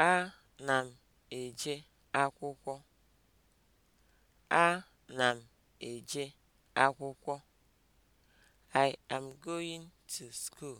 A na m eje akwụkwọ. I am going to school.